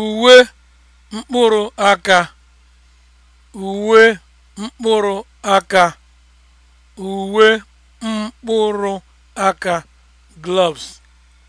uwe mkpụrụ aka uwe mkpụrụ aka uwe mkpụrụ aka gloves